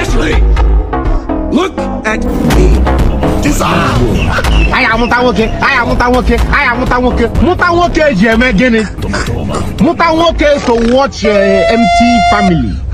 Ashley! Look at me. Disarm! Aya muta nwoke, aya muta nwoke, aya muta nwoke. Muta nwoke ji eme gịnị? Muta nwoke so watch your eh, empty family.